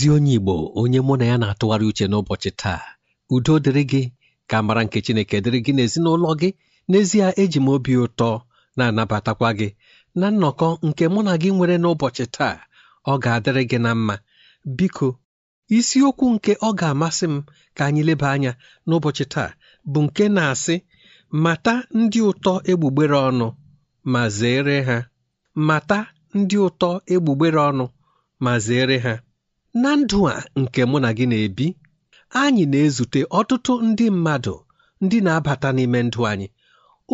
ezi onye Igbo onye mụ na ya na-atụgharị uche n'ụbọchị taa udo dịrị gị ka amara nke Chineke dịrị gị n'ezinụlọ gị n'ezie eji m obi ụtọ na-anabatakwa gị na nnọkọ nke mụ na gị nwere n'ụbọchị taa ọ ga-adịrị gị na mma biko isiokwu nke ọ ga-amasị m ka anyị leba anya n'ụbọchị taa bụ nke na-asị mata ndị ụtọ egbugbere ọnụ ma zere ha mata ndị ụtọ egbugbere ọnụ ma zere ha na ndụ a nke mụ na gị na-ebi anyị na-ezute ọtụtụ ndị mmadụ ndị na-abata n'ime ndụ anyị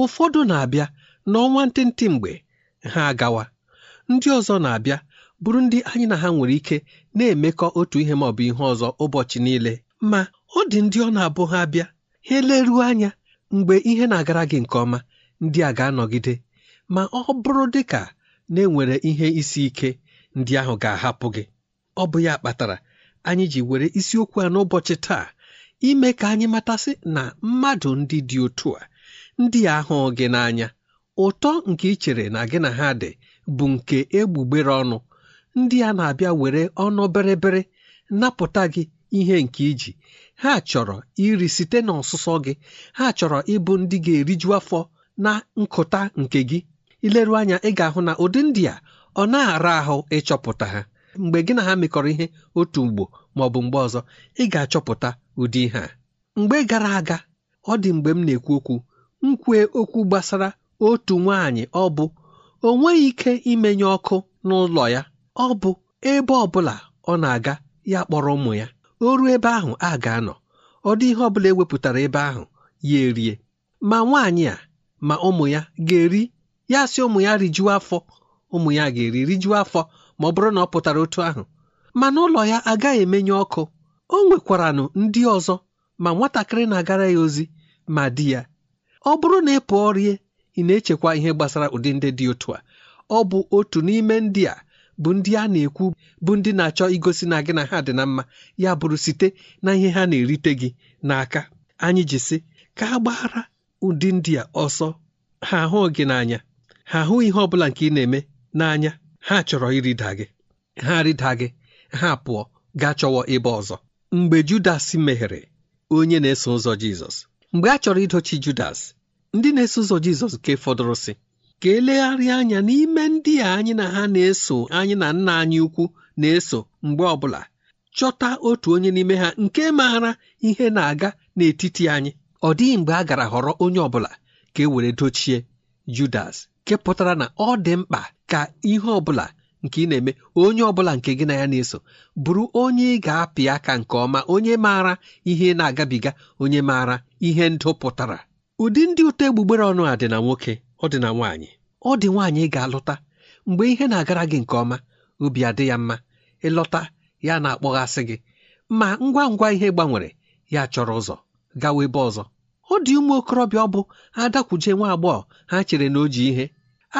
ụfọdụ na-abịa n'ọnwa ntịntị mgbe ha agawa ndị ọzọ na-abịa bụrụ ndị anyị na ha nwere ike na-emekọ otu ihe maọbụ bụ ihe ọzọ ụbọchị niile ma ọ dị ndị ọ na-abụ ha abịa ha eleruo anya mgbe ihe na-agara gị nke ọma ndị a ga-anọgide ma ọ bụrụ dị ka na enwere ihe isi ike ndị ahụ ga-ahapụ gị ọ bụ ya kpatara anyị ji were isiokwu a n'ụbọchị taa ime ka anyị matasị na mmadụ ndị dị otu a ndị ahụ gị n'anya ụtọ nke ị chere na gị na ha dị bụ nke egbugbere ọnụ ndị a na-abịa were ọnụ bịrịbịrị napụta gị ihe nke iji ha chọrọ iri site n'ọsụsọ gị ha chọrọ ịbụ ndị ga-eriju afọ na nkụta nke gị ileru anya ị ga-ahụ na ụdị ndị a ọ na-ara ahụ ịchọpụta ha mgbe gị na ha mekọrọ ihe otu mgbo ma ọ bụ mgbe ọzọ ị ga-achọpụta ụdị ihe a mgbe gara aga ọ dị mgbe m na-ekwu okwu m okwu gbasara otu nwaanyị ọ bụ o nweghị ike imenye ọkụ n'ụlọ ya ọ bụ ebe ọ bụla ọ na-aga ya kpọrọ ụmụ ya o ruo ebe ahụ a ga-anọ ọ dị ihe ọ bụla ewepụtara ebe ahụ ya erie ma nwaanyị a ma ụmụ ya ga-eri ya sị ụmụ ya rijuo afọ ụmụ ya ga-eri rijuo afọ ma ọ bụrụ na ọ pụtara otu ahụ mana ụlọ ya agaghị emenye ọkụ o nwekwaranụ ndị ọzọ ma nwatakịrị na-agara ya ozi ma di ya ọ bụrụ na ị pụọ rie ị na-echekwa ihe gbasara ụdị ndị dị otu a ọ bụ otu n'ime ndị a bụ ndị a na-ekwu bụ ndị na-achọ igosi na gị na ha dị na mma ya bụrụ site na ihe ha na-erite gị n'aka anyị ji sị ka a gbaghara ụdị ndị a ọsọ ha ahụ gị n'anya ha ahụ ihe ọ bụla nke ị na-eme n'anya ha chọrọ ịrịda gị ha rịda gị ha pụọ gaa chọwa ebe ọzọ mgbe Judas meghere onye na-eso ụzọ Jizọs mgbe a chọrọ idochi Judas ndị na-eso ụzọ Jizọs nke fọdụrụ ka elegharịa anya n'ime ndị a anyị na ha na-eso anyị na nna anyị ukwu na-eso mgbe ọbụla chọta otu onye n'ime ha nke maara ihe na-aga n'etiti anyị ọ dịghị mgbe a gara họrọ onye ọbụla ka e were dochie Judas nke pụtara na ọ dị mkpa ka ihe ọbụla nke ị na-eme onye ọbụla nke gị na ya na-eso bụrụ onye ị ga-apị aka nke ọma onye maara ihe na-agabiga onye maara ihe ndụ pụtara ụdị ndị ụtọ egbugbere ọnụ a dị na nwoke ọ dị na nwaanyị ọ dị nwaanyị ị ga-alụta mgbe ihe na-agara gị nke ọma obi adị ya mma ịlọta ya na-akpọghasị gị ma ngwa ngwa ihe gbanwere ya chọrọ ụzọ gawa ebe ọzọ ọ dị ụmụ okorobịa ọ bụ adakwuje nwa agbọghọ ha chere na o ji ihe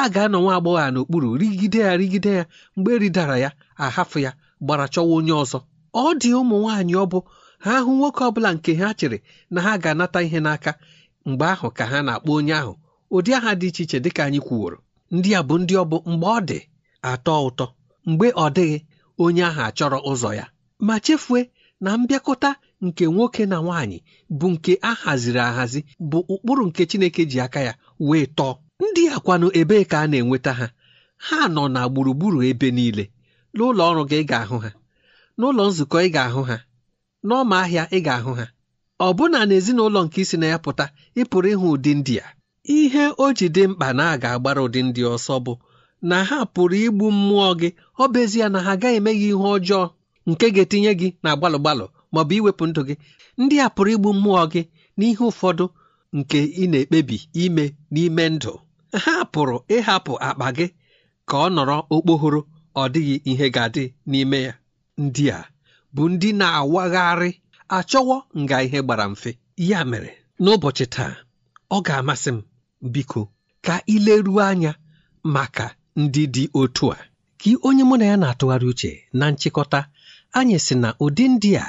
a ga-anọ nwa agbọghọ a n'okpuru rigide ya rigide ya mgbe eridara ya ahafụ ya gbara chọwa onye ọzọ ọ dị ụmụ nwaanyị ọ bụ ha hụ nwoke ọ bụla nke ha chere na ha ga-anata ihe n'aka mgbe ahụ ka ha na-akpọ onye ahụ ụdị aha dị iche iche dịka anyị kwuworo ndị a bụ ndị ọ bụ mgbe ọ dị atọ ụtọ mgbe ọ dịghị onye ahụ achọrọ ụzọ ya ma chefue na mbịakọta nke nwoke na nwaanyị bụ nke a haziri ahazi bụ ụkpụrụ nke Chineke ji aka ya wee tọọ ndị a kwanụ ebee ka a na-enweta ha ha nọ na gburugburu ebe niile n'ụlọ ọrụ gị ị ga-ahụ ha n'ụlọ nzukọ ị ga-ahụ ha n'ọma ahịa ị ga-ahụ ha Ọ na n'ezinụlọ nke isi na ya pụta ị pụrụ ịhụ ụdị ndị a ihe o ji dị mkpa na a ga-agbara ụdị ndị ọsọ bụ na ha pụrụ igbu mmụọ gị ọ bụ ezie na ha agaghị eme gị ihe ọjọọ nke ga-etinye gị na gbalụ-gbalụ bụ iwepụ ndụ gị ndị a pụrụ igbu mmụọ gị n'ihe ụfọdụ nke ị na-ekpebi ime n'ime ndụ ha pụrụ ịhapụ akpa gị ka ọ nọrọ okpohoro ọ dịghị ihe ga-adị n'ime ya ndị a bụ ndị na-awagharị achọwo nga ihe gbara mfe ya mere n'ụbọchị taa ọ ga-amasị m biko ka ileruo anya maka ndị dị otu a ka onye mụ na ya na-atụgharị uche na nchịkọta anyị si na ụdị ndị a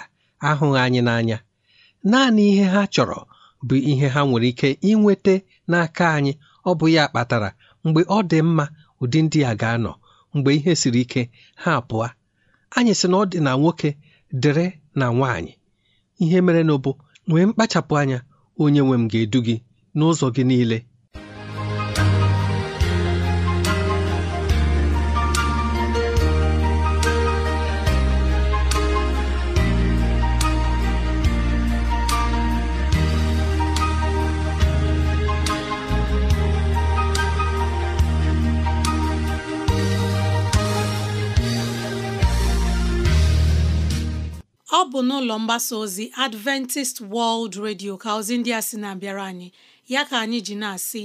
ahụghị anyị n'anya naanị ihe ha chọrọ bụ ihe ha nwere ike inweta n'aka anyị ọ bụ ya kpatara mgbe ọ dị mma ụdị ndị a ga-anọ mgbe ihe siri ike ha pụọ anyị sị na ọ dị na nwoke dịrị na nwaanyị ihe mere na nwee mkpachapụ anya onye nwe m ga-edu gị n'ụzọ gị niile mgbasa ozi Adventist World Radio ka ozi ndị a sị na-abịara anyị ya ka anyị ji na-asị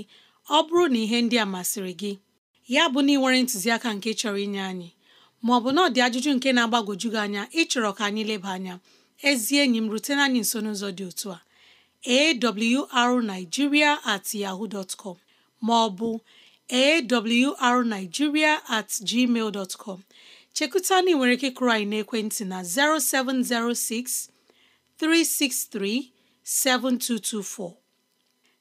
ọ bụrụ na ihe ndị a masịrị gị ya bụ na ị nwere ntụziaka nke chọrọ inye anyị ma ọ bụ na ọ dị ajụjụ nke na-agbagwoju gị anya ịchọrọ ka anyị leba anya ezi enyi m rutena anyị nso n'ụzọ dị otu a awrnigeria at yahoo dot com ma ọ bụ awrnigeria at gmail dot com chekụta na ị nwere ike kụrụ anyị n'ekwentị na 0706 363 7224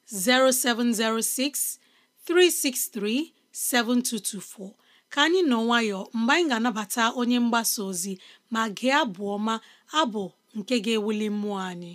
0706 363 7224 ka anyị nọ nwayọ mgbe anyị ga-anabata onye mgbasa ozi ma gị abụ ọma abụ nke ga-ewuli mmụọ anyị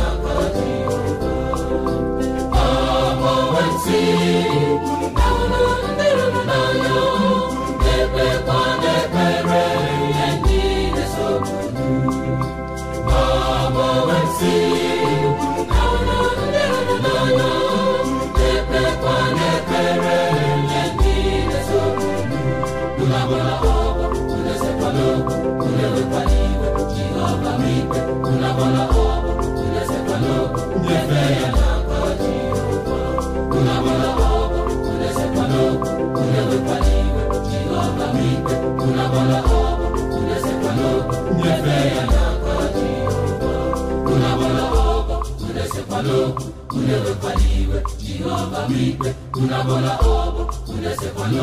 unewekwana iwe jehova bụ ikpe unabona ọbụ unesekwana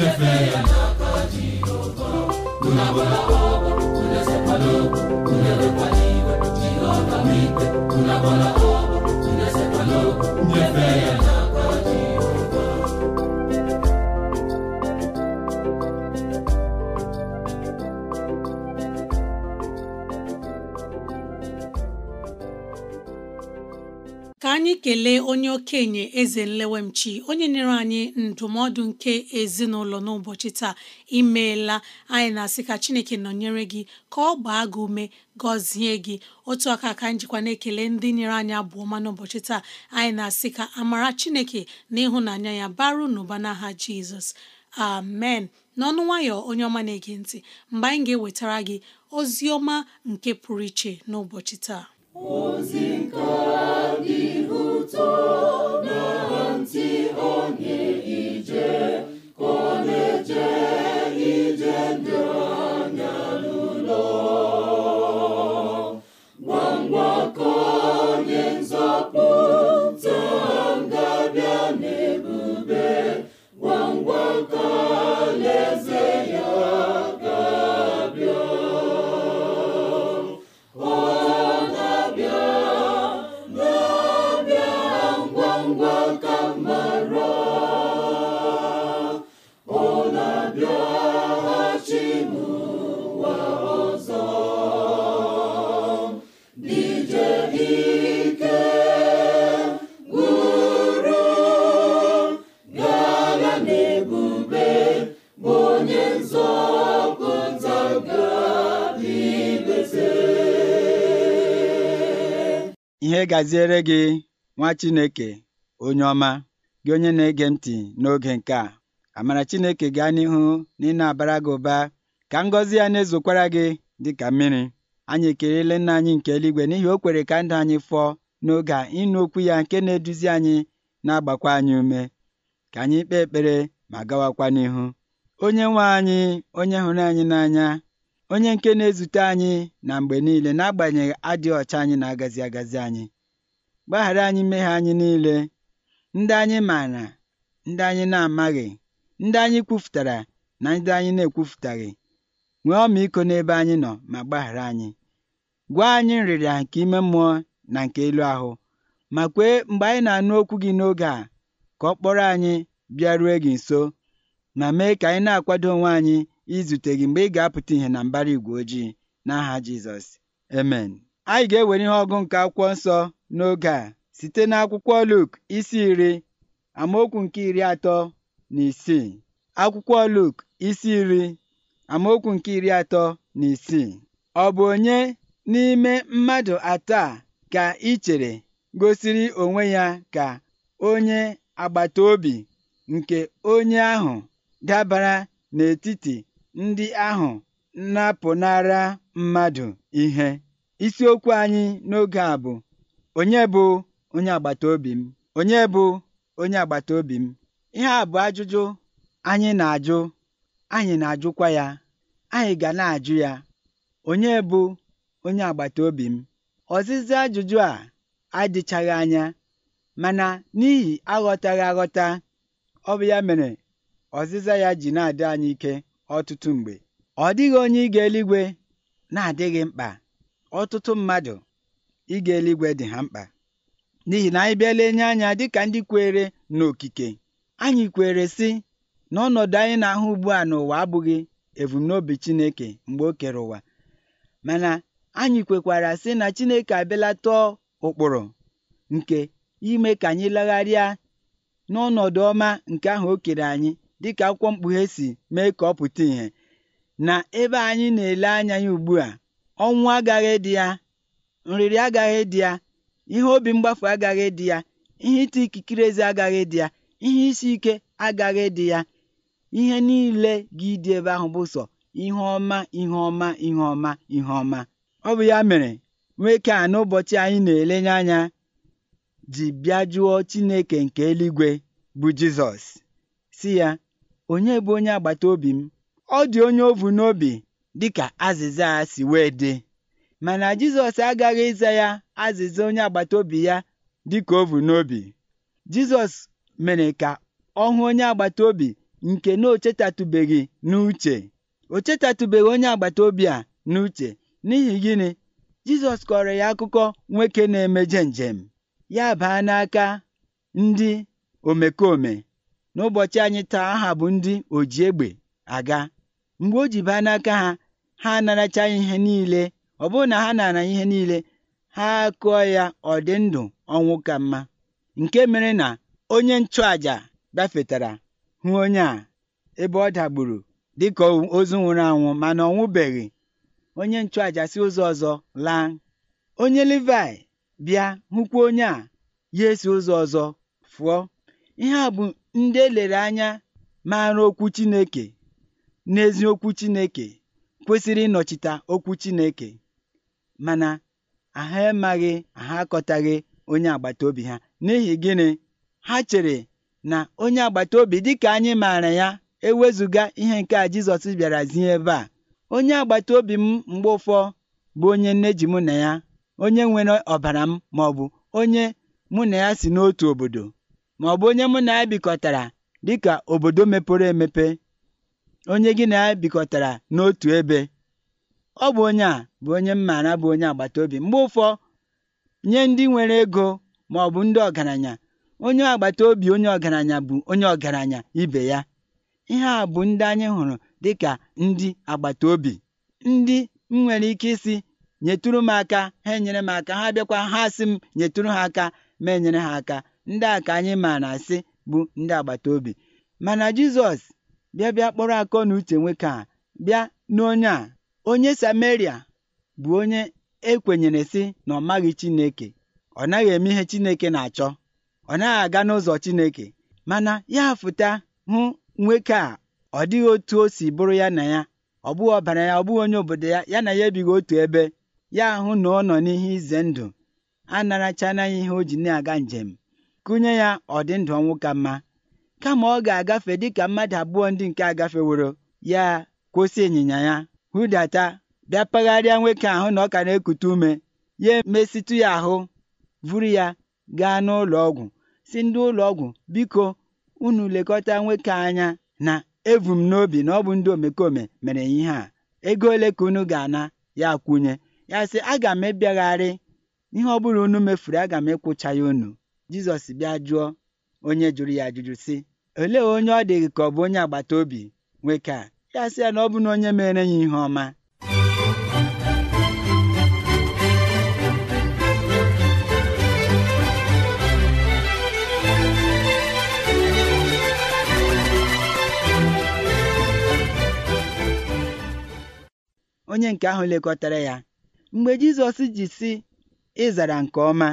ya n'aka jehova unabona ọbụ okenye eze nlewemchi onye nyere anyị ndụmọdụ nke ezinụlọ n'ụbọchị taa imeela anyị na-asị ka chineke nọnyere gị ka ọ gbaa gị ume gọzie gị otu aka ka njikwa jikwa na-ekele ndị nyere anyị abụ n'ụbọchị taa anyị na-asị ka amara chineke na ịhụnanya ya baru n'ụba n'aha jizọs amen n'ọnụ nwayọ onye ọma na-ege ntị mgbe anyị ga-ewetara gị ozi ọma nke pụrụ iche n'ụbọchị taa ozi nke adịghị ụtọ Ekele gaziere gị nwa Chineke onye ọma gị onye na-ege ntị n'oge nke a amara Chineke gaa n'ihu na ị na-abara gị ụba ka ngọzi ya na-ezokwara gị dị ka mmiri anyị ekelela nna anyị nke eluigwe n'ihi o kwere ka ndị anyị fọọ n'oge a ịnụ okwu ya nke na-eduzi anyị na-agbakwa anyị ume ka anyị kpee ekpere ma gawakwa n'ihu onye nwe anyị onye hụrụ anyị n'anya onye nke na-ezute anyị na mgbe niile na-agbanyeghị adịghị ọcha anyị na-agazi agazi anyị gbaghara anyị mmehie anyị niile ndị anyị maara ndị anyị na-amaghị ndị anyị kwufutara na ndị anyị na-ekwufutaghị nwee iko n'ebe anyị nọ ma gbaghara anyị gwa anyị nrịrịa nke ime mmụọ na nke elu ahụ ma kwee mgbe anyị na-anụ okwu gị n'oge a ka ọ kpọrọ anyị bịaruo gị nso ma mee ka anyị na-akwado onwe anyị izute gị mgbe ị ga-apụta ihe na mbara igwe ojii n'aha Jizọs amen anyị ga-ewere ihe ọgụ nke akwụkwọ nsọ n'oge a site n'akwụkwọ Luk isi iri amaokwu nke iri atọ na isii akwụkwọ Luk isi iri amaokwu nke iri atọ na isii ọ bụ onye n'ime mmadụ atọ a ka ị chere gosiri onwe ya ka onye agbata obi nke onye ahụ dabara n'etiti ndị ahụ napụnara mmadụ ihe isiokwu anyị n'oge a bụ onye bụ onye agbata obi m onye bụ onye agbata obi m ihe a bụ ajụjụ anyị na-ajụ anyị na-ajụkwa ya anyị ga na-ajụ ya onye bụ onye agbata obi m ọzịza ajụjụ a adịchaghị anya mana n'ihi aghọtaghị aghọta ọ bụ ya mere ọzịza ya ji na-adị anyị ike ọtụtụ mgbe ọ dịghị onye ịga eluigwe na-adịghị mkpa ọtụtụ mmadụ ịga eluigwe dị ha mkpa n'ihi na anyị bịala enye anya dịka ndị kwere n'okike anyị kwere sị na ọnọdụ anyị na-ahụ ugbu a n'ụwa abụghị ebumnobi Chineke mgbe o kere ụwa mana anyị kwekwara sị na Chineke abịala ụkpụrụ nke ime ka anyị legharịa n'ọnọdụ ọma nke ahụ o kere anyị dịka akwụkwọ mkpughe si mee ka ọ pụta ìhè na ebe anyị na-ele anya ya ugbu a ọnwụ agaghị dị ya nrịrị agaghị dị ya ihe obi mgbafu agaghị dị ya ihe ịta ikikere eze agaghị dị ya ihe isi ike agaghị dị ya ihe niile gị dị ebe ahụ bụ sọ ihe ọma ihe ọma ihe ọma ihe ọma ọ bụ ya mere nwoke a n'ụbọchị anyị na-elenye anya ji bịa jụọ Chineke nke eluigwe bụ Jizọs si ya onye bụ onye agbata obi m ọ dị onye ovu n'obi dịka azịza a si wee dị mana Jizọs agaghị ịza ya azịza onye agbata obi ya dịka ovu n'obi Jizọs mere ka ọ hụ onye agbata obi nke na o chetatụbeghị n'uche o chetatụbeghị onye agbata obi a n'uche n'ihi gịnị Jizọs kọrọ ya akụkọ nwoke na-emeje njem ya baa n'aka ndị omekome n'ụbọchị anyị taa aha bụ ndị oji egbe aga mgbe o ji baa n'aka ha ha anaracha ihe niile ọ bụrụ na ha nara ihe niile ha akụọ ya ọ dị ndụ ọnwụ ka mma nke mere na onye nchụàjà gafetara hụ onye a ebe ọ dagburu dịka ozu nwụrụ anwụ mana ọ onye nchụàjà si ụzọ ọzọ laa onye Livaị bịa hụkwa onye a ya esi ụzọ ọzọ fụọ ihe a bụ ndị elere anya maara okwu Chineke n'ezi okwu Chineke kwesịrị ịnọchite okwu Chineke mana ha emaghị ha akọtaghị onye agbata obi ha n'ihi gịnị ha chere na onye agbata obi dị ka anyị maara ya ewezụga ihe nke a Jizọs bịara zie ebe a onye agbata obi m mgbe bụ onye nne ji mụ na ya onye nwere ọbara m maọbụ onye mụ na ya si n'otu obodo bụ onye mụ na ya bikọtara dịka obodo mepere emepe onye gị na ya bikọtara n'otu ebe ọ bụ onye a bụ onye m maara bụ onye agbata obi mgbe ụfọ nye ndị nwere ego maọbụ ndị ọgaranya onye agbata obi onye ọgaranya bụ onye ọgaranya ibe ya ihe a bụ ndị anyị hụrụ dịka ndị agbata obi ndị m nwere ike isi nyetụrụ m aka ha enyere m aka ha bịakwa ha sị m nyetụrụ ha aka ma enyere ha aka ndị a ka anyị maara na-asị bụ ndị agbata obi mana Jizọs bịa bịa kpọrọ akọ na uche nwoke a bịa n'onye a onye Sameria bụ onye ekwenyere sị na ọ maghị Chineke ọ naghị eme ihe Chineke na-achọ ọ naghị aga n'ụzọ Chineke mana ya fụta hụ nwoke a ọ dịghị otu o si bụrụ ya na ya ọ bụghị ọbara ya ọ bụghị onye obodo ya ya na ya ebighị otu ebe ya ahụ na ọ nọ n'ihe ize ndụ a ya ihe o ji na-aga njem kụnye ya ọdịndụ ọnwụ ka mma kama ọ ga-agafe dịka mmadụ abụọ ndị nke agafeworo ya kwụsị ịnyịnya ya hụdata bịa pagharịa nwoke ahụ na ọ ka na-ekute ume ya emesịtụ ya ahụ vuru ya gaa n'ụlọ ọgwụ si ndị ụlọ ọgwụ biko unu lekọta nwoke anya na evum n'obi na ọ bụ ndị omekome mere ya ihe a ego ole ka unu ga-ana ya kwunye ya sị aga m ebiagharị ihe ọ bụrụ unu mefuru aga m ịkwụcha ya unu Jizọs bịa jụọ onye jụrụ ya ajụjụ si olee onye ọ dịghị ka ọ bụ onye agbata obi nwoke a ya sị ya na ọ bụ na onye mere ya ihe ọma onye nke ahụ lekọtara ya mgbe Jizọs ji si ịzara nke ọma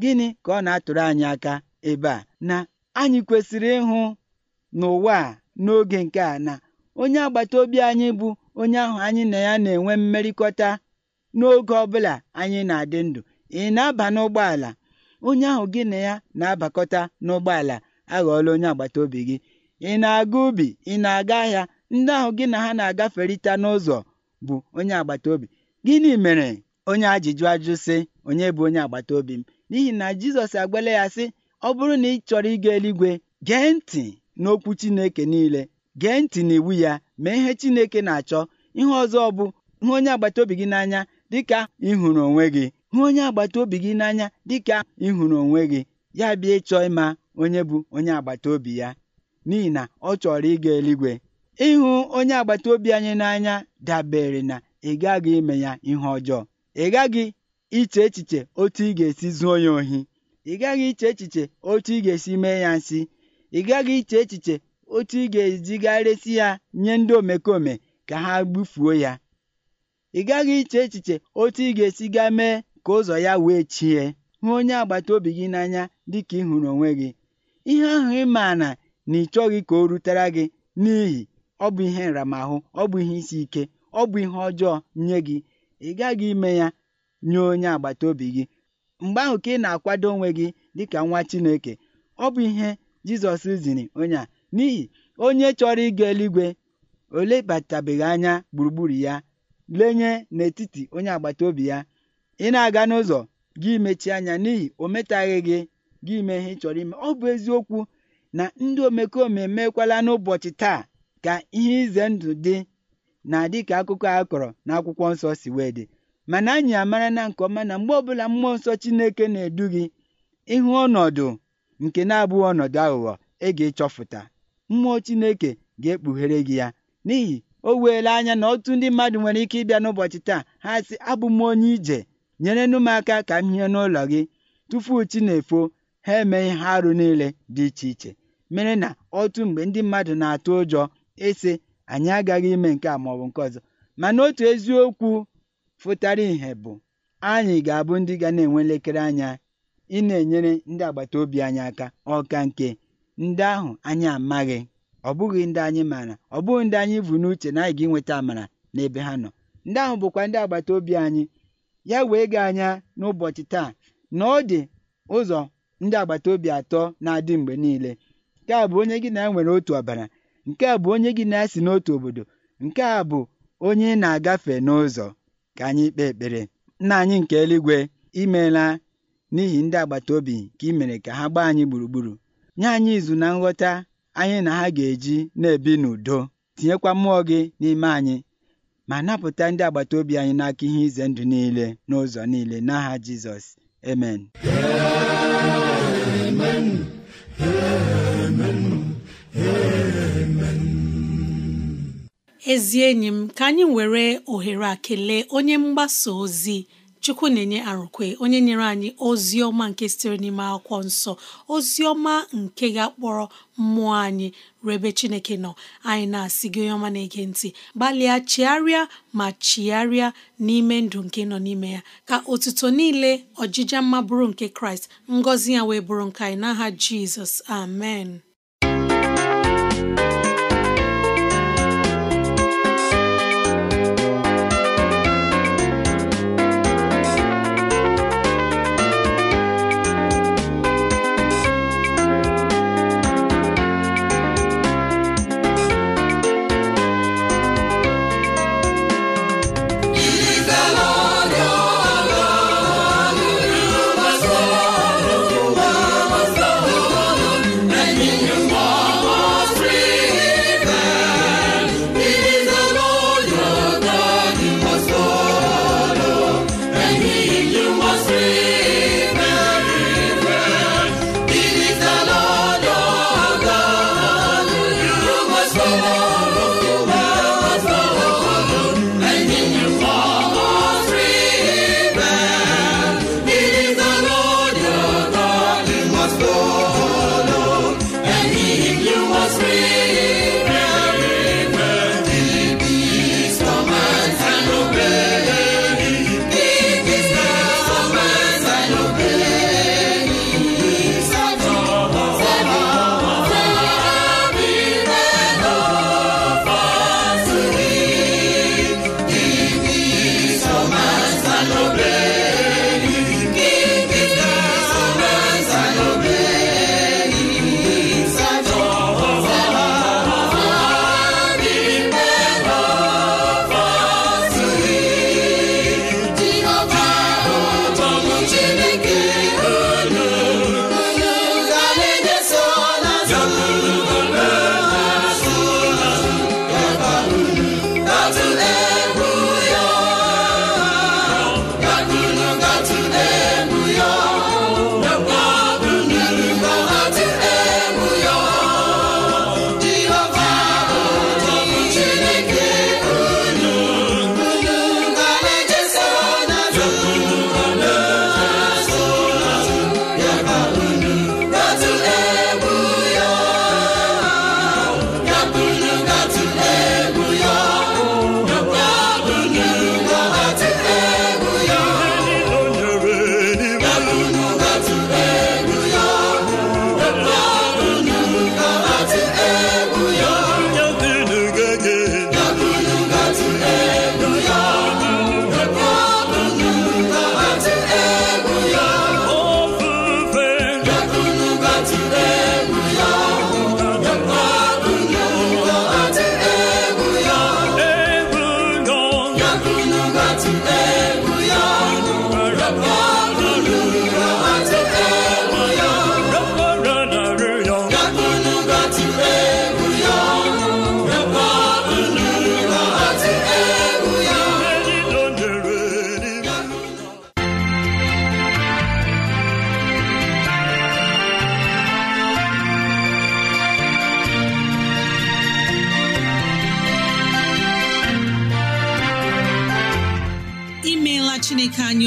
gịnị ka ọ na-atụrụ anyị aka ebe a na anyị kwesịrị ịhụ n'ụwa a n'oge nke a na onye agbata obi anyị bụ onye ahụ anyị na ya na-enwe mmerịkọta n'oge ọ bụla anyị na-adị ndụ ị na-aba n'ụgbọala onye ahụ gị na ya na-abakọta n'ụgbọala aghọọla onye agbata obi gị ị na-aga ubi ị na-aga ahịa ndị ahụ gị na ha na-agaferịta n'ụzọ bụ onye agbata obi gịnị mere onye ajụjụ ajụ sị onye bụ onye agbata obi m n'ihi na jizọs agbala ya sị ọ bụrụ na ị chọrọ ịga eluigwe gee ntị n'okwu chineke niile gee ntị n'iwu ya mee ihe chineke na-achọ ihe ọzọ bụ hụ onye agbata obi gị n'anya dịka ịhụrụ onwe gị hụ onye agbata obi gị n'anya dịka ịhụrụ onwe gị ya bịa ịchọ ịma onye bụ onye agbata obi ya n'ihi na ọ chọrọ ịga eluigwe ịhụ onye agbata obi anyị n'anya dabere na ị gaghị ime ya ihe ọjọọ ị gaghị iche echiche otu ị ga-esi zuo ya ohi ị gaghị iche echiche otu ị ga-esi mee ya nsị ị gaghị iche echiche otu ị ga-ezigharịsị ya nye ndị omekome ka ha gbufuo ya ị gaghị iche echiche otu ị ga-esi ga mee ka ụzọ ya wee chie hụ onye agbata obi gị n'anya dị ka ị hụrụ onwe gị ihe ahụ ị na na ị chọghị ka o rutere gị n'ihi ọ bụ ihe nramahụ ọ bụ ihe isi ike ọ bụ ihe ọjọọ nye gị ị gaghị ime ya nye onye agbata obi gị mgbe ahụ ka ị na-akwado onwe gị dịka nwa Chineke ọ bụ ihe Jizọs ziri onye a n'ihi onye chọrọ ịga eluigwe o anya gburugburu ya lenye n'etiti onye agbata obi ya ị na-aga n'ụzọ gị mechie anya n'ihi o metaghị gị gị ime ihe ị chọrọ ime ọ bụ eziokwu na ndị omekome emekwala n'ụbọchị taa ka ihe ize ndụ dị na dịka akụkọ a kọrọ n'akwụkwọ nsọ si wee dị mana anyị amara na nke ọma na mgbe ọbụla mmụọ nsọ Chineke na-edu gị ịhụ ọnọdụ nke na-abụghị ọnọdụ aghụghọ ị ga-ịchọfụta mmụọ Chineke ga-ekpughere gị ya n'ihi o weela anya na otu ndị mmadụ nwere ike ịbịa n'ụbọchị taa ha sị abụ m onye ije nyere m aka ka m hie n'ụlọ gị tupu chi na-efo ha eme ihe arụ niile dị iche iche mere na otu mgbe ndị mmadụ na-atụ ụjọ ịsị anyị agaghị ime nke a maọbụ nke ọzọ mana otu eziokwu fụtara ìhè bụ, anyị ga-abụ ndị ga na-enwe elekere anya ị na-enyere ndị agbata obi anyị aka ọka nke ndị ahụ anyị amaghị, ọ bụghị ndị anyị maara, ọ bụghị ndị anyị bụ n'uche na anyị ga-enweta amara n'ebe ha nọ. Ndị ahụ bụkwa ndị agbata obi anyị. Ya wee gị anya n'ụbọchị taa na ọ dị ụzọ ndị agbata obi atọ na-adị mgbe niile. Nke a bụ onye gị na e nwere otu ọbara, nke a bụ onye gị na ya si n'otu obodo, nke a bụ onye ị na-agafe n'ụzọ. ka anyị kpee ekpere nna anyị nke eluigwe imeela n'ihi ndị agbata obi ka ị mere ka ha gbaa anyị gburugburu nye anyị izu na nghọta anyị na ha ga-eji na-ebi n'udo tinyekwa mmụọ gị n'ime anyị ma napụta ndị agbata obi anyị n'aka ihe ize ndụ niile n'ụzọ niile n'aha Jizọs amen amen ezi enyi m ka anyị were ohere a kelee onye mgbasa ozi chukwu na-enye arụkwe onye nyere anyị ozi ọma nke sitere n'ime akwụkwọ nsọ ozi ọma nke ga-akpọrọ mmụọ anyị rebe chineke nọ anyị na-asị gị onye ọma na-ege ntị gbalịa chiarịa ma chigharịa n'ime ndụ nke nọ n'ime ya ka otuto niile ọjija mma bụrụ nke kraịst ngọzi ya wee bụrụ nke anyị n'aha jizọs amen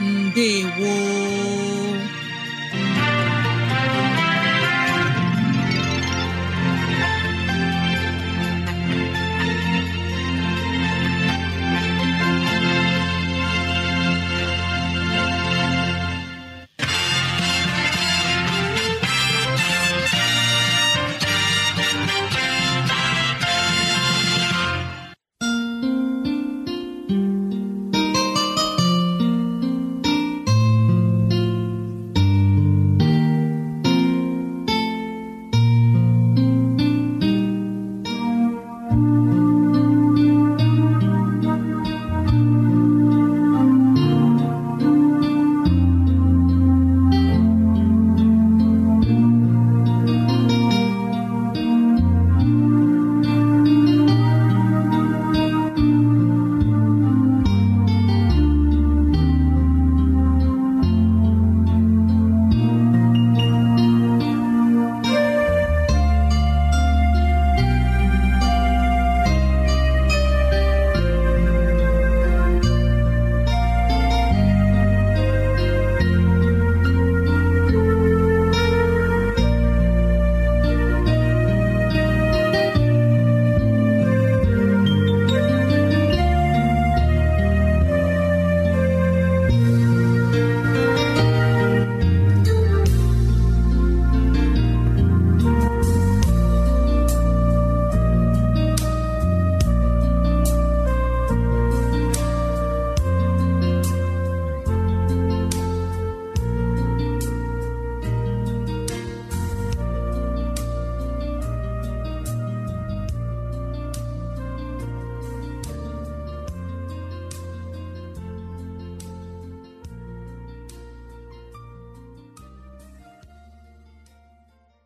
ndewo